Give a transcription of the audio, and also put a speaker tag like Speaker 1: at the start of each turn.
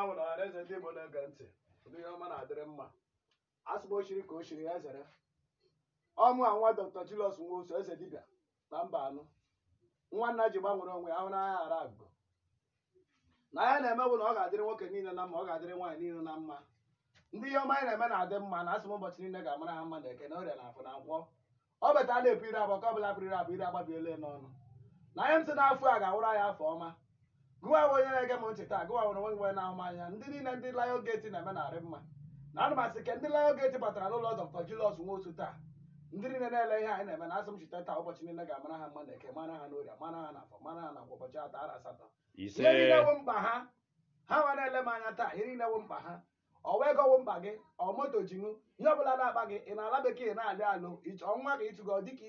Speaker 1: na nwere ọhanaeze ndị Igbo na-ege ntị ihe ọma na-adịrị mma asịba ochiri ka o ya zere ọmụ a nwa Dr. Julius Nwosu eze dibịa na mba anụ nwa nna ji gbanwere onwe ahụ n'agha ghara agụ na ya na-emewu na ọ ga-adịrị nwoke niile na mma ọ ga-adịrị nwaanyị niile na mma ndị ihe ọma na-eme adị mma na ụbọchị niile ga ha mma na eke na na afọ na ọ betala ka n'ọnụ na a ga-awụrụ afọ ọma gụwa onye na-ege m ntị taa gụwa nwere nwe na-ahụ anya ndị niile ndị Lion Gate na-eme narị mma na ana ndị asị ke ndị Lion Gate batara n'ụlọ Dr. nwa otu taa ndị niile na-ele ihe anyị na-eme na asị m chita taa ụbọchị niile ga-amara ha mma na eke mara ha n'oria mara ha na afọ mara ha na ụbọchị atọ ara asatọ ihe niile wụ mkpa ha ha nwe na-ele m anya taa ihe niile wụ mkpa ha ọ wee gowo mkpa gị ọ moto ji ihe ọ bụla na-akpa gị ị na-ala bekee na-alụ alụ ọnwa ka ịtụgo dịka